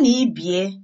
na ibie